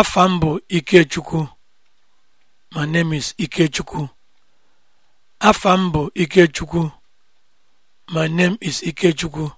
afa m bụ Ikechukwu my name is Ikechukwu afa m bụ Ikechukwu my name is Ikechukwu